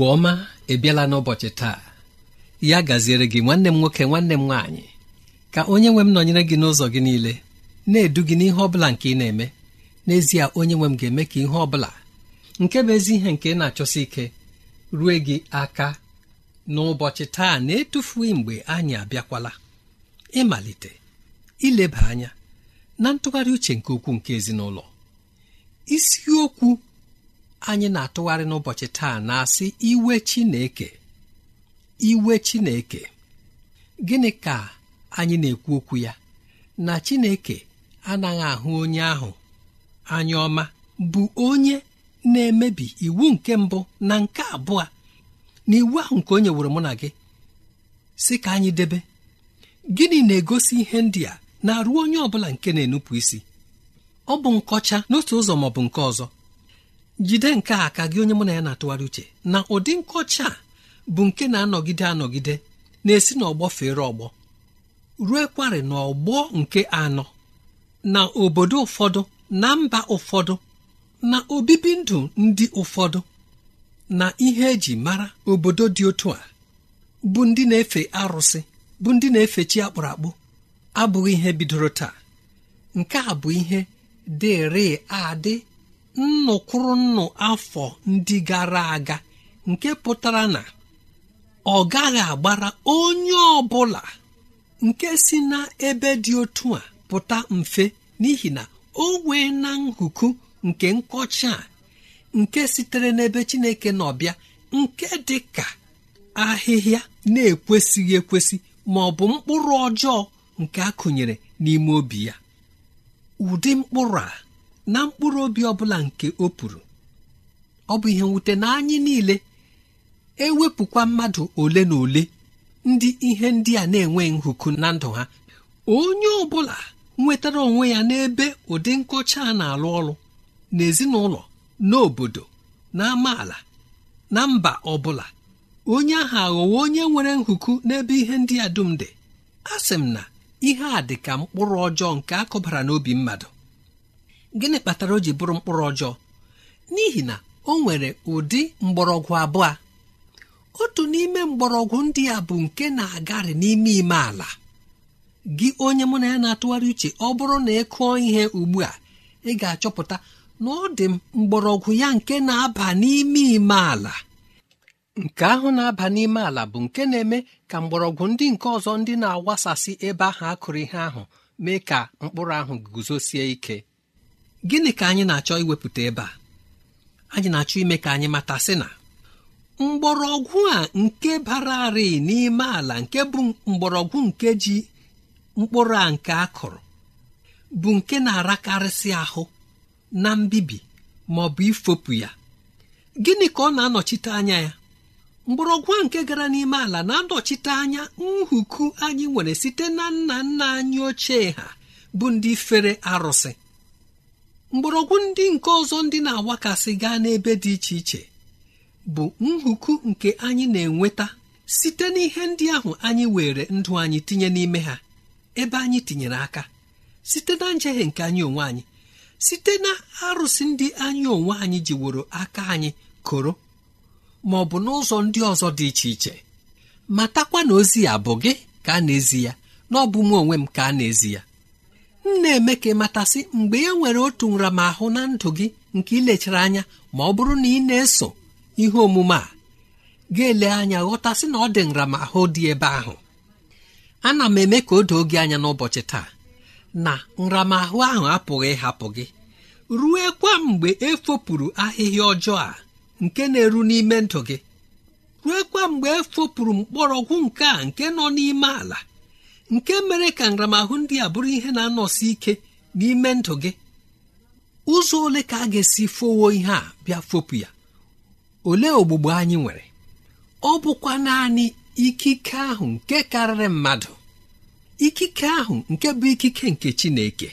mgbe ọma ebiela n'ụbọchị taa ya gaziere gị nwanne m nwoke nwanne m nwaanyị ka onye nwe m nọnyere gị n'ụzọ gị niile na-edu gị n'ihe ọbụla nke ị na-eme n'ezie onye nwe m ga-eme ka ihe ọbụla nke bụ ezi ihe nke ị na-achọsi ike rue gị aka n'ụbọchị taa na-etufughị mgbe anyị abịakwala ịmalite ileba anya na ntụgharị uche nke ukwuu nke ezinụlọ isiokwu anyị na-atụgharị n'ụbọchị taa na-asị iwe Chineke iwe Chineke gịnị ka anyị na-ekwu okwu ya na Chineke anaghị ahụ onye ahụ anya ọma bụ onye na-emebi iwu nke mbụ na nke abụọ na iwu ahụ nke o nyeworo mụ na gị si ka anyị debe gịnị na-egosi ihe ndị a na-arụ onye ọ bụla nke na-enupụ isi ọ bụ nkọcha n'otu ụzọ maọbụ nke ọzọ jide nke a ka gị onye mụ na ya na-atụgharị uche na ụdị nkọcha bụ nke na-anọgide anọgide na-esi n'ọgbọ fere ọgbọ ruo kwarị ọgbọ nke anọ na obodo ụfọdụ na mba ụfọdụ na obibi ndụ ndị ụfọdụ na ihe eji mara obodo dị otu a bụ ndị na-efe arụsị bụ ndị na-efe chi akpụrụ akpụ abụghị ihe bidoro taa nke a bụ ihe dịrị adị nnụkwụrụnnụ afọ ndị gara aga nke pụtara na ọ gaghị agbara onye ọ bụla nke si n'ebe dị otu a pụta mfe n'ihi na o wee na nhuku nke nkọcha a nke sitere n'ebe chineke n'ọbịa nke dị ka ahịhịa na-ekwesịghị ekwesị ma ọ bụ mkpụrụ ọjọọ nke a kụnyere n'ime obi ya ụdị mkpụrụ a na mkpụrụ obi ọbụla nke o puru ọ bụ ihe mwute na anyị niile ewepụkwa mmadụ ole na ole ndị ihe ndị a na-enwe nhụku na ndụ ha onye ọ bụla nwetara onwe ya n'ebe ụdị nkọcha a na-alụ ọrụ n'ezinụlọ n'obodo na amaala na mba ọbụla onye ahụ aghọwo onye nwere nhụku n'ebe ihe ndị a dum dị a sị m na ihe a dị ka mkpụrụ ọjọọ nke a n'obi mmadụ gịnị kpatara o ji bụrụ mkpụrụ ọjọọ n'ihi na o nwere ụdị mgbọrọgwụ abụọ otu n'ime mgbọrọgwụ ndị a bụ nke na-agarị n'ime ime ala gị onye mụ na ya na-atụgharị uche ọ bụrụ na ị kụọ ihe ugbu a ị ga-achọpụta na ọ dị mgbọrọgwụ ya nke na-aba n'ime ime ala nke ahụ na-aba n'ime ala bụ nke na-eme ka mgbọrọgwụ ndị nke ọzọ ndị na-awasasị ebe ahụ akụrụ ihe ahụ mee ka mkpụrụ ahụ guzosie ike gịnị ka anyị na-achọ iwepụta ebe a anyị na-achọ ime ka anyị mata sị na mgbọrọgwụ a nke bararị n'ime ala nke bụ mgbọrọgwụ nke ji mkpụrụ a nke a kụrụ bụ nke na-arakarịsị ahụ na mbibi ma ọ bụ ifopụ ya gịnị ka ọ na-anọchite anya ya mgbọrọgwụ a nke gara n'ime ala na-anọchite anya nhuku anyị nwere site na nna nna anyị ochie ha bụ ndị fere arụsị mgbọrọgwụ ndị nke ọzọ ndị na agwakasị gaa n'ebe dị iche iche bụ nhuku nke anyị na-enweta site n'ihe ndị ahụ anyị were ndụ anyị tinye n'ime ha ebe anyị tinyere aka site na njehie nke anyị onwe anyị site na arụsị ndị anyị onwe anyị jiworo aka anyị koro ma ọ bụ n'ụzọ ndị ọzọ dị iche iche matakwa na ozi ya bụ gị ka a na-ezi ya na ọ bụ m onwe m ka a na-ezi ya m na-eme ka mgbe e nwere otu nramahụ na ndụ gị nke ilechara anya ma ọ bụrụ na ị na-eso ihe omume a ga-ele anya ghọtasị na ọ dị nramahụ dị ebe ahụ ana m eme ka o doo gị anya n'ụbọchị taa na nramahụ ahụ apụghị ịhapụ gị rue kwa mgbe efopụrụ ahịhịa ọjọọ a nke na-eru n'ime ndụ gị rue kwa mgbe efopụrụ mkpọrọgwụ nke a nke nọ n'ime ala nke mere ka nramahụ ndị a bụrụ ihe na-anọsi ike n'ime ndụ gị ụzọ ole ka a ga-esi fowo ihe a bịa fopụ ya ole ogbugbo anyị nwere ọ bụkwa naanị ikike ahụ nke karịrị mmadụ ikike ahụ nke bụ ikike nke Chineke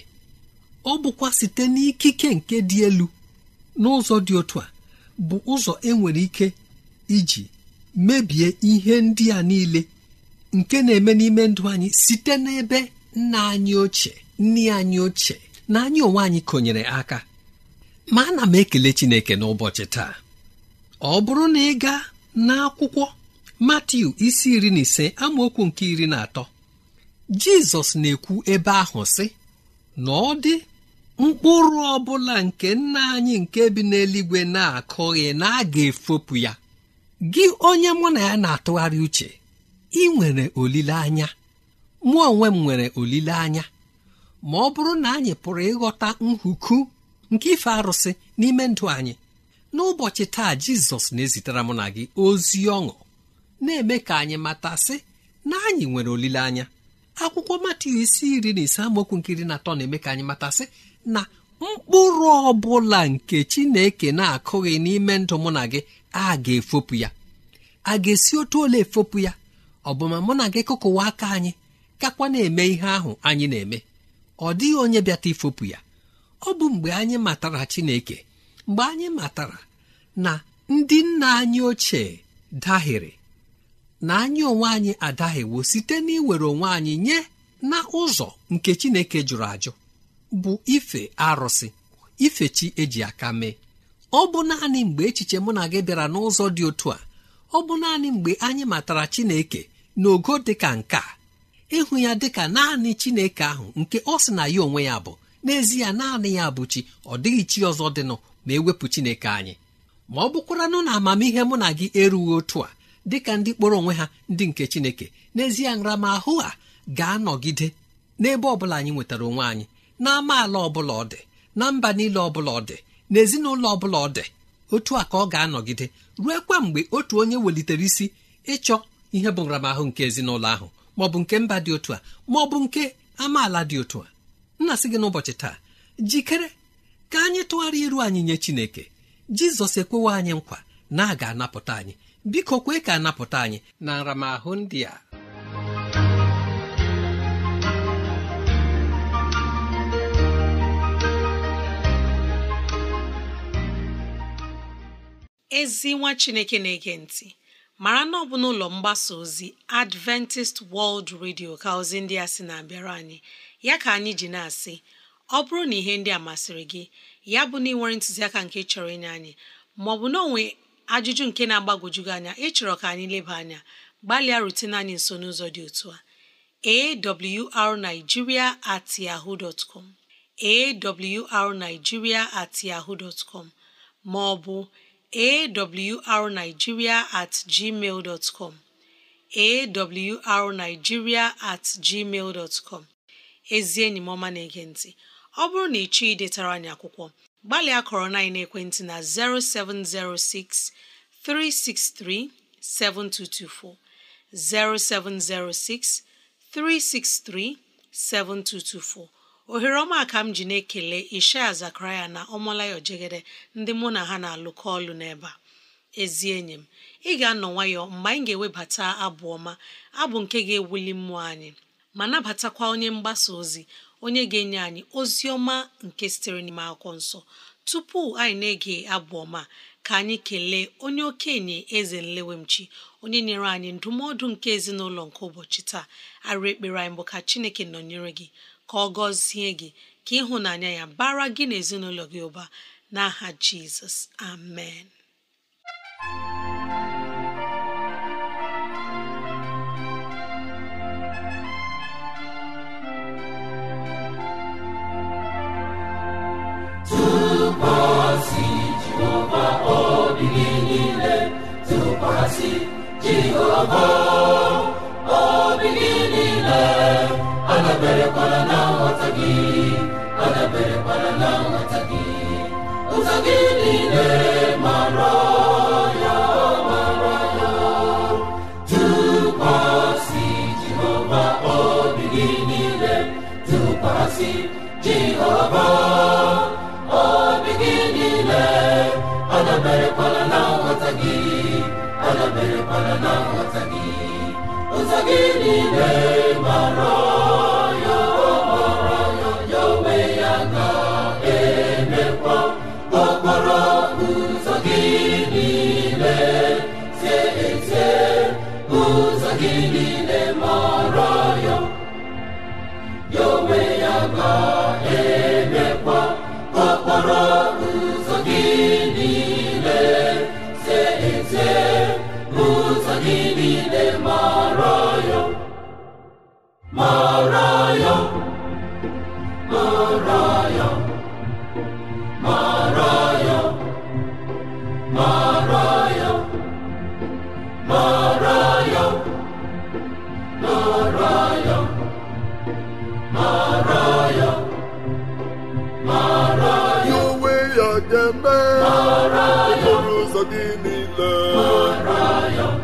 ọ bụkwa site n'ikike nke dị elu n'ụzọ dị otu a bụ ụzọ enwere ike iji mebie ihe ndị a niile nke na-eme n'ime ndụ anyị site n'ebe nna anyị ochie nne anyị ochie na anyị onwe anyị konyere aka ma ana m ekele Chineke n'ụbọchị taa ọ bụrụ na ị gaa n'akwụkwọ Matiu isi iri na ise amaokwu nke iri na atọ Jizọs na-ekwu ebe ahụ sị na ọ dị mkpụrụ ọ bụla nke nna anyị nke bi n'eluigwe na-akụghị na a ga-efopụ ya gị onye mụ na ya na-atụgharị uche ị nwere olileanya mụ onwe m nwere olileanya ma ọ bụrụ na anyị pụrụ ịghọta nhuku nke ife arụsị n'ime ndụ anyị n'ụbọchị taa jizọs na-ezitere mụ na gị ozi ọṅụ na-eme ka anyị matasị na anyị nwere olileanya akwụkwọ Matiu isi iri na ise amaokwu nkiri na atọ na-eme ka anyị matasị na mkpụrụ ọ bụla nke Chineke na-akụghị n'ime ndụ mụ na gị a ga-efopụ ya a ga-esi otu ole efopụ ya ọ bụ ma mụ na gị kụkụwa aka anyị kakwa na-eme ihe ahụ anyị na-eme ọ dịghị onye bịata ifopụ ya ọ bụ mgbe anyị matara Chineke mgbe anyị matara na ndị nna anyị ochie dahịrị na anyị onwe anyị adahiwo site n'iwere onwe anyị nye na ụzọ nke Chineke jụrụ ajụ bụ ife arụsị ife chi eji aka mee ọ bụ naanị mgbe echiche mụ na gị bịara n'ụzọ dị otu a ọ bụ naanị mgbe anyị matara Chineke n'ogo dị ka nke a ịhụ ya dị ka naanị chineke ahụ nke ọ sị na ya onwe ya bụ n'ezie naanị ya bụ chi ọ dịghị chi ọzọ dịnụ ma ewepụ chineke anyị ma ọ bụkwaranụ na amamihe mụ na gị erughị otu a dị ka ndị kpọrọ onwe ha ndị nke chineke n'ezie nramahụ a ga-anọgide n'ebe ọbụla anyị nwetara onwe anyị na amaala ọbụla ọ dị na mba niile ọbụla ọ dị ezinụlọ ọbụla ọ dị otu a ka ọ ga-anọgide kwa mgbe otu onye welitere isi ịchọ ihe bụ nramahụ nke ezinụlọ ahụ ma ọ bụ nke mba dị otu a ma ọ bụ nke amaala dị otu a nna sị gị n'ụbọchị taa jikere ka anyị tụgharị iru anyị nye Chineke Jizọs ekwewe anyị nkwa na a ga-anapụta anyị biko kwee ka anapụta anyị na nramahụ ndị a ezi nwa Chineke na-ege ntị mara na ọ bụ n'ụlọ mgbasa ozi Adventist World Radio ka ozi ndị a sị na-abịara anyị ya ka anyị ji na-asị ọ bụrụ na ihe ndị a masịrị gị ya bụ na ịnwere ntụziaka nke chọrọ inye anyị maọbụ na onwe ajụjụ nke na agbagojugị anya ịchọrọ ka anyị leba anya gbalịa rutene anyị nso n'ụzọ dị otu a awrnigeria at yahoo dot com at com maọbụ awrnigeria at gmail dot com awrnigeria at gmail dot com ezi enyi m ọma na-ege ntị ọ bụrụ na ịchọ idetara anyị akwụkwọ gbalịa kọrọ na ekwentị na 0706 363 7224 0706 363 7224 ohere ọma ka m ji na-ekele ishaya zakaraya na ọmalayo jegede ndị mụ na ha na-alụkọ ọlụ n'ebe a ezi enyi m ị ga-anọ nwayọ mgbe anyị ga-ewebata abụ ọma abụ nke ga-ewuli mmụọ anyị ma nabatakwa onye mgbasa ozi onye ga-enye anyị ozi ọma nke sitere n'ime akwụkwọ nsọ tupu anyị na-ege abụ ọma ka anyị kelee onye okenye eze nlewemchi onye nyere anyị ndụmọdụ nke ezinụlọ nke ụbọchị taa arụ ekpere anyị bụ ka chineke nọnyere gị ka ọ gọzie gị ka ịhụnanya ya bara gị n'ezinụlọ gị ụba n'aha jizọs amen tụkwasị Jehova obi gị niile tụkwasị Jehova obi gị niile ọ daberekwala na nghọta gị ọ daberekwala na nghọta gị ụzọ gị niile mara ya mara ya si Jehova obi gị niile tụkwasị Jehova obi gị niile ọ daberekwala na nghọta gị ọ daberekwala na nghọta gị ụzọ gị mara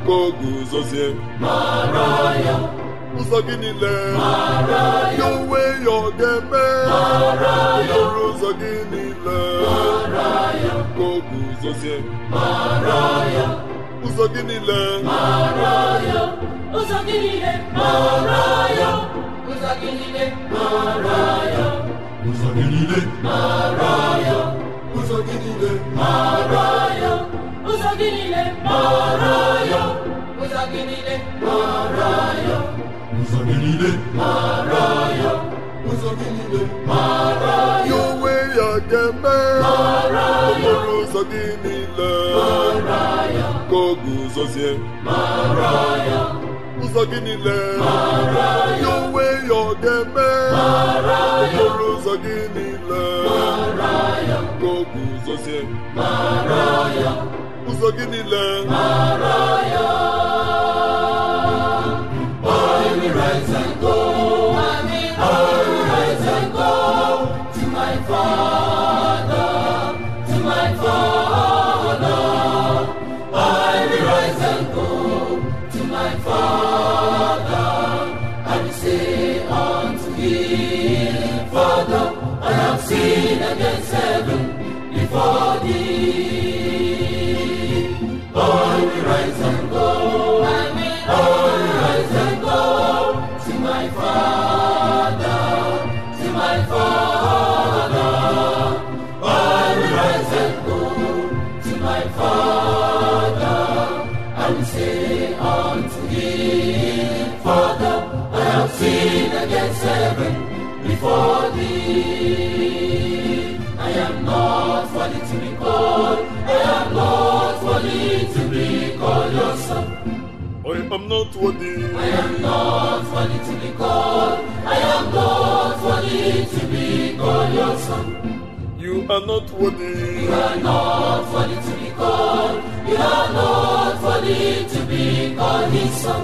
ka o guzozie ụzọ gị niile ya onwe ya ọ ga-eme ọrụ ụzọ gị niile ka o guzozie ụzọ gịnị ụzọ gị niile ụzọ gị niile ụzọ gị niile ụzọ gị niile ụzọ gị niile mara ya ụzọ gị niile mara ya ụzọ gị niile mara ya ụzọ gị niile mara ya onwe ya ga-eme ya ụzọ gị niile mara ya ka ọ ya ụzọ gị niile mara ya onwe ya ọ ya ụzọ gị niile mara ya ka ọ ya ụzọ gị niile for I am not worthy to be called. I am not worthy to be called your son. I am not worthy. I am not worthy to be called. I am not worthy to be called your son. You are not worthy. You are not worthy to be called. You are not worthy to be called his son.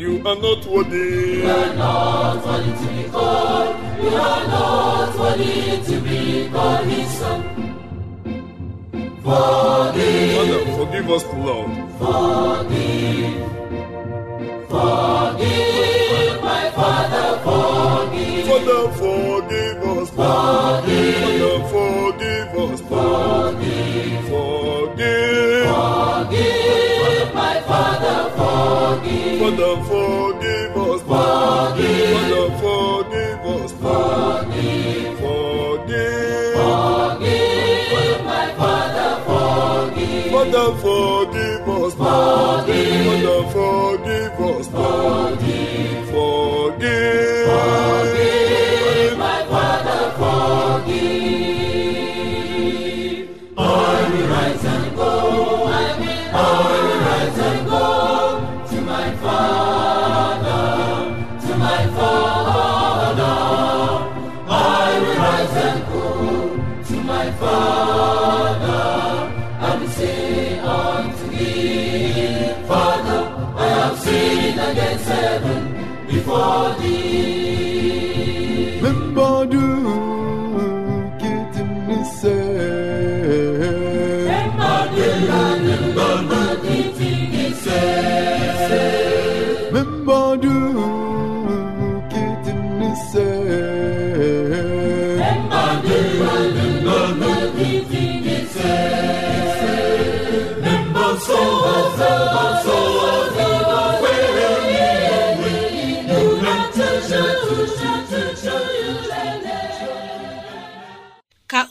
You are not worthy. You are not worthy to be called. we are not worthy to be called his son. Forgive. forgive Forgive. my Father, forgive. forgive forgive us. Forgive. forgive us. Forgive. Forgive. Forgive, my Father, forgive. Father, forgive us. Father, forgive us. Forgive. forgive.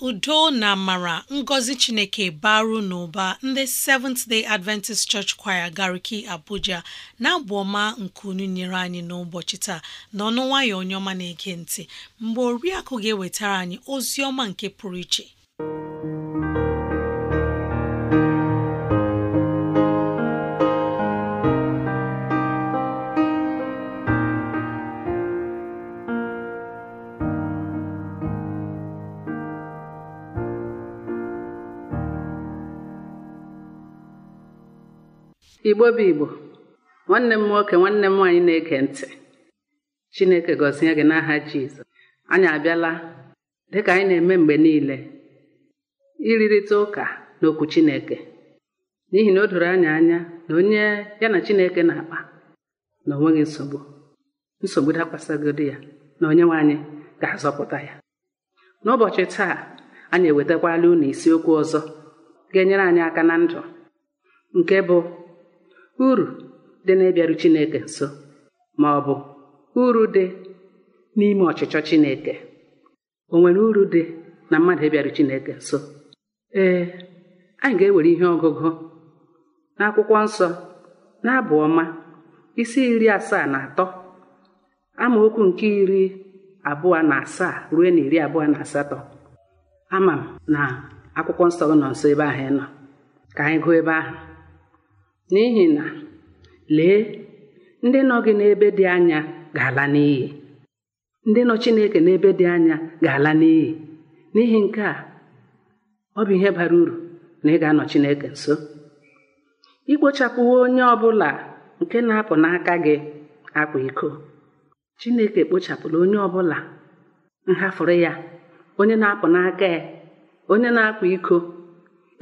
udo na mara ngọzi chineke baru n'ụba ndị Seventh Day Adventist Church Choir Gariki Abuja na-abụ ọma nke unu nyere anyị n'ụbọchị taa n'ọnụ nwayọ onye ọma na-ege ntị mgbe oriakụ ga-ewetara anyị ozi ọma nke pụrụ iche igbo bụ igbo nwanne m nwoke nwanne m nwaanyị na-ege ntị chineke gọzie gị n'aha jizọs anyị abịala dịka anyị na-eme mgbe niile ịrịrịta ụka n'okwu chineke n'ihi na o doro anyị anya na onye ya na chineke na-akpa na onweghị nsogbu nsogbu dakwasagodi ya na onye nwe anyị ga-azọpụta ya n'ụbọchị taa anyị ewetakwala unu isiokwu ọzọ ga-enyere anyị aka na ndụ nke bụ uru dị na Chineke nso ma ọ bụ uru dị n'ime ọchịchọ Chineke o nwere uru dị na mmadụ ịbịaru Chineke nso ee anyị ga-ewere ihe ọgụgụ n'akwụkwọ nsọ n'abụọma ọma isi iri asaa na atọ amaokwu nke iri abụọ na asaa ruo na iri abụọ na asatọ ama m na akwụkwọ nsọ nọ nso ebe ahụ ị nọ ka anyị gụọ ebe ahụ n'ihi na lee ndị nọ gị n'ebe dị anya ga-ala n'iyi ndị nọ Chineke n'ebe dị anya ga-ala n'iyi n'ihi nke a ọ bụ ihe bara uru na ị ga-anọ Chineke nso ikpochapụwo onye ọ bụla nke na-apụ n'aka gị akwa iko Chineke kpochapụla onye ọ bụla nhafụrụ ya onye na-apụ n'aka ya onye na-akwa iko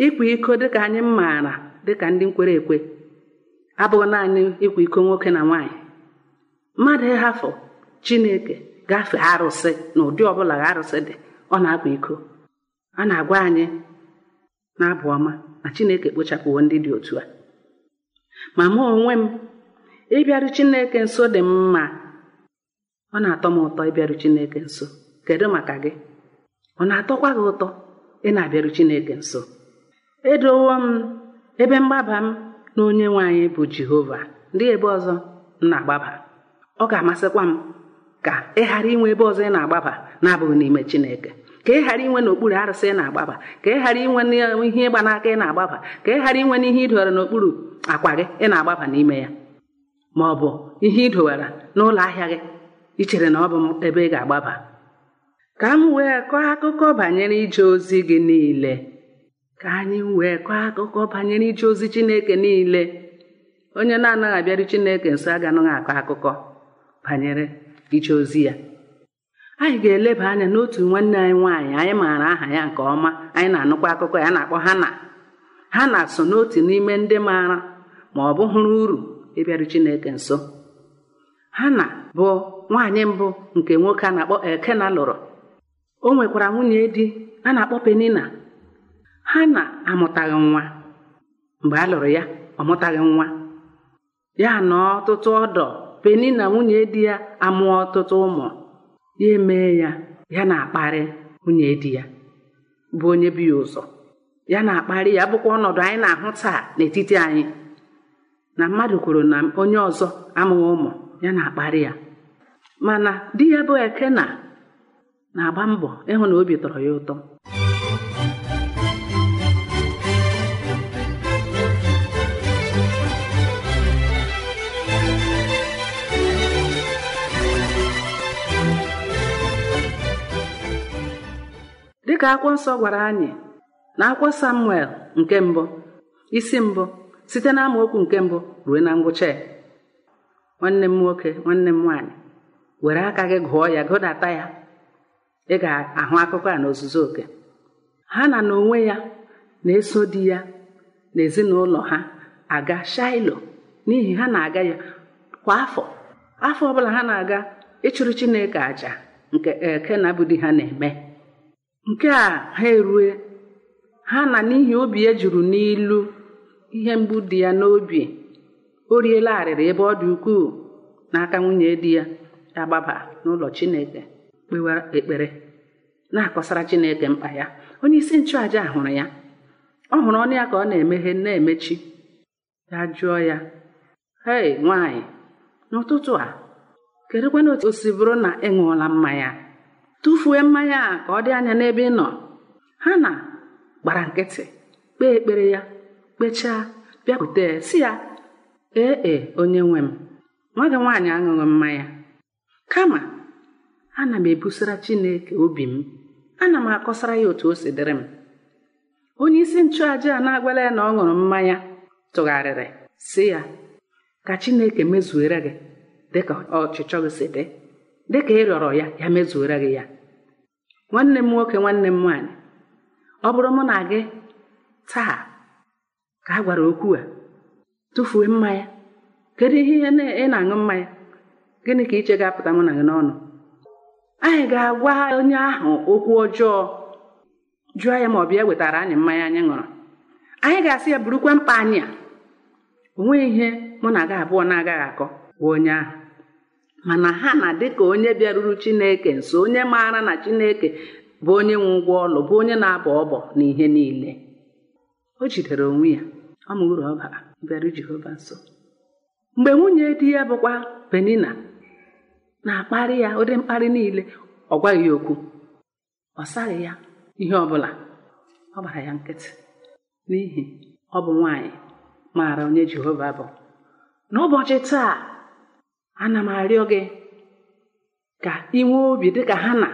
ịkwa iko dịka anyị maara dịka ndị nkwere ekwe abụghị naanị ịkwa iko nwoke na nwaanyị mmadụ ịhafụ chineke gafee arụsị na ụdị ọbụla arụsị dị ọ na-akwa iko a na-agwa anyị na-abụ ọma na chineke kpochapụwo ndị dị otu a ma mụ onwe m ịbịaru chineke nso dị mma ọ na-atọ m ụtọ ịbịaru chineke nso kedu maka gị ọ na-atọkwa gị ụtọ ị na-abịaru chineke nso edowo m ebe mgbaba m na onye nwe anyị bụ jehova ndị ebe ọzọ na-agbaba ọ ga-amasịkwa m ka ị ghara inwe ebe ọzọ ị na-agbaba na-abụghị n'ime chineke ka ị ghara inwe n'okpuru arụsị ị na-agbaba ka ị ghara inwe ihe ịgba n'aka ị na-agbaba ka ị ghara inwe n'ihe idowara n'okpuru akwa gị ị na-agbaba n'ime ya ma ọ bụ ihe idowara n'ụlọ ahịa gị ichere na ọ bụ ebe ị ga-agbaba ka m wee kọọ akụkọ banyere ije ozi gị niile ka anyị wee kọọ akụkọ banyere ije ozi chineke niile onye na-anaghị abịarị chineke nso aganaghị akọ akụkọ banyere ije ozi ya anyị ga-eleba anya n'otu nwanne anyị nwaanyị anyị maara aha ya nke ọma anyị na-anụkwa akụkọ ya na-akpọ ha na so n'otu n'ime ndị maara ma ọ bụ hụrụ uru ịbịarị chineke nso Hana bụ nwaanyị mbụ nke nwoke a na-akpọ Ekena lụrụ o nwekwara nwunye di a na-akpọ Penina ha na-amụtaghị nwa mgbe a lụrụ ya ọ mụtaghị nwa ya na ọtụtụ ọdọ peni na nwunye di ya amụọ ọtụtụ ụmụ ya emee ya ya na-akparị nwunye di ya bụ onye bi ya ụzọ ya na-akparị ya bụkwa ọnọdụ anyị na-ahụ taa n'etiti anyị na mmadụ kwuru na onye ọzọ amụghị ụmụ ya na-akparị ya mana di ya bụ ekena na-agba mbọ ịhụ na obi tọrọ ya ụtọ ka akwụkwọ nsọ gwara anyị na akwụkwọ samuel nke mbụ isi mbụ site na amaokwu nke mbụ ruo na ngwụcha ya nwanne m nwoke nwanne m nwaanyị were aka gị gụọ ya gụdata ya ị ga-ahụ akụkọ a ozuzo oke ha na na onwe ya na-eso di ya na ezinụlọ ha aga shailo n'ihi ha na-aga ya kwa afọ afọ ọbụla ha na-aga ịchụrụ chineke aja nke ekena eh, bụ di ha na-eme nke a ha erue ha na n'ihi obi ya e juru n'ilu ihe mgbu dị ya n'obi o riela arịrị ebe ọ dị ukwuu n'aka nwunye di ya agbaba n'ụlọ Chineke kpewa ekpere na-akọsara Chineke mkpa ya onye isi nchụàja hụrụ ya ọ hụrụ ọnụ ya ka ọ na-emeghe na-emechi ya jụọ ya hei nwaanyị n'ụtụtụ a kedụkwana otu o si bụrụ na ị ṅụọla mmanya tụfuo mmanya a ka ọ dị anya n'ebe ị nọ ha na gbara nkịtị kpee ekpere ya kpechaa bịakwute si ya ee e onye nwe m nwa gị nwaanyị aṅụghị mmanya kama ana m ebusara chineke obi m ana m akọsara ya otu o si dịrị m onye isi nchụaja a na-agwala ya na ọ ṅụrụ mmanya tụgharịrị si ya ka chineke mezuere gị dịka ọchịchọ gị si dị dịka ị rịọrọ ya ya mezuere gị ya nwanne m nwoke nwanne m nwaanyị ọ bụrụ mụ na gị taa ka a gwara okwu a tụfuo mmanya kedu ihe ị na-aṅụ mmanya gịnị ka iche ga-apụta mụ na gị n'ọnụ anyị ga-agwa onye ahụ okwu ọjọọ jụọ ya ma ọ bịa wetara anyị mmanya anyị ṅụrụ anyị ga-asị ya burukwa mkpa anyị a o nweghị ihe mụ na gị abụọ na-agaghị akọ gwa onye ahụ mana ha na ka onye bịaruru chineke nso onye maara na chineke bụ onye nwe ụgwọ ọlụ bụ onye na-abọ ọbọ na ihe niile o jidere onwe ya ọ mụrụ ọba jehova nso mgbe nwunye di ya bụkwa penina na-akparị ya ụdị mkparị niile ọ gwaghị okwu ọ saghị ya ihe ọ bụla ọ gbara ya nkịtị n'ihi ọ bụ nwaanyị maara onye jehova bụ n'ụbọchị taa ana m arịọ gị ka ị nwee obi dịka ha na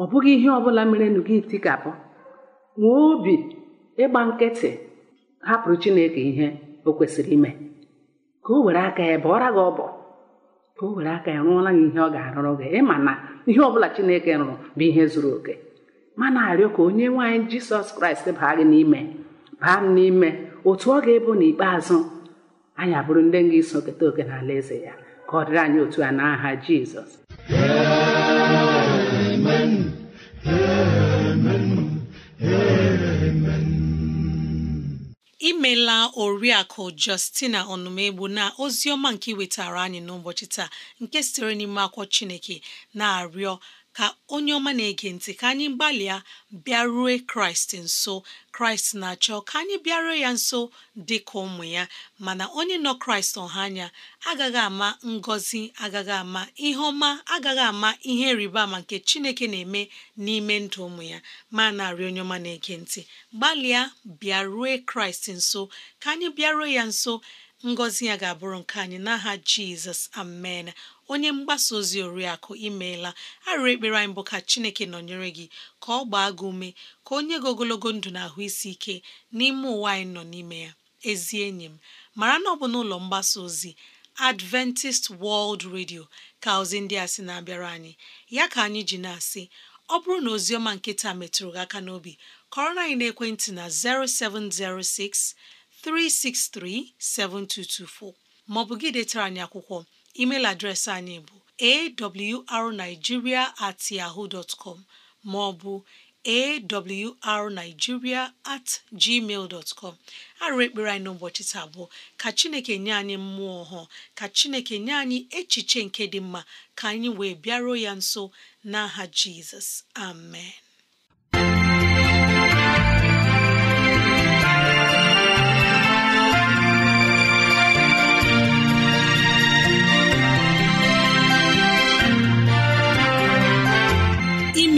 ọ bụghị ihe ọbụla merenụ gị tikapụ nwee obi ịgba nkịtị hapụrụ chineke ihe o kwesịrị ime ka o were aka ya bụọra gị ọbọ ka o were aka ya rụọla gị ihe ọ ga-arụrụ gị ịma na ihe ọbụla chineke rụrụ bụ ihe zuru oke mana arịọ ka onye nwaanyị jisọs kraịst baa gị n'ime baa m n'ime otu ọ ga-ebu n'ikpeazụ anyị abụrụ ndị ga iso keta oke n'ala eze ya ka ọ dịrị anyị otu a n'aha jizọs imela oriakụ justina ọnụmegbu na ozi ọma nke wetara anyị n'ụbọchị taa nke sitere n'ime akwụkwọ chineke na-arịọ ka onye ọma na-ege ntị ka anyị gbalịa bịarue kraịst nso kraịst na-achọ ka anyị bịaruo ya nso dị ka ụmụ ya mana onye nọ kraịst ọha anya agaghị ama ngọzi agaghị ama ihe ọma agaghị ama ihe rịba ama nke chineke na-eme n'ime ndụ ụmụ ya ma narị onye ọma na-ege ntị gbalịa bịarue kraịst nso ka anyị bịaruo ya nso ngọzi ya ga-abụrụ nke anyị n'aha jizọs amen onye mgbasa ozi oriakụ imeela arịrị ekpere anyị bụ ka chineke nọnyere gị ka ọ gbaa gị ume ka onye gị ogologo ndụ na ahụ isi ike n'ime ụwa anyị nọ n'ime ya ezi enyi m mara na ọ bụ n'ụlọ mgbasa ozi adventist world radio ka ozi ndị a sị na-abịara anyị ya ka anyị ji na-asị ọ bụrụ na ozi ọma nkịta metụrụ gị aka n'obi kọrọ na anyị na ekwentị na 0706 363-7224 maọbụ gị detara anyị akwụkwọ email adreesị anyị bụ arigiria at com maọbụ awrnigeria at gmail dot arụ ekpere anyị n'ụbọchị taa bụ ka Chineke nye anyị mmụọ ọhụụ ka Chineke nye anyị echiche nke dị mma ka anyị wee bịaruo ya nso n'aha Jizọs amen